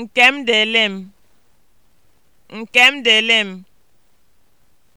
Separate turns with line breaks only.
Nkem dele m, Nkem dele m